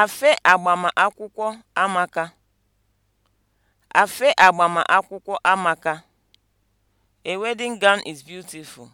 Afe agbamakwụkwọ amaka. Afe agbamakwụkwọ amaka. A wedding gown is beautiful.